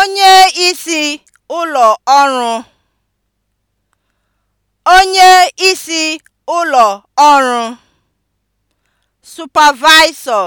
onye isi ụlọ ọrụ onye isi ụlọ ọrụ (Supervisor)